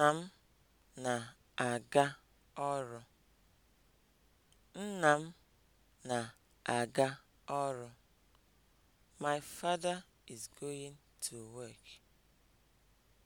Nna m na-aga ọrụ. Nna m na-aga ọrụ. My father is going to work.